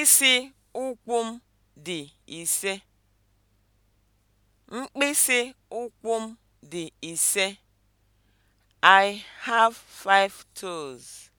Mkpịsị ụkwụ m dị ise. dị ise. I have five toes.